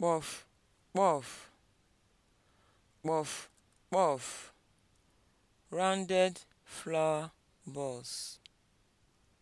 kpọf kpọf kpọf kpọf rounded flower balls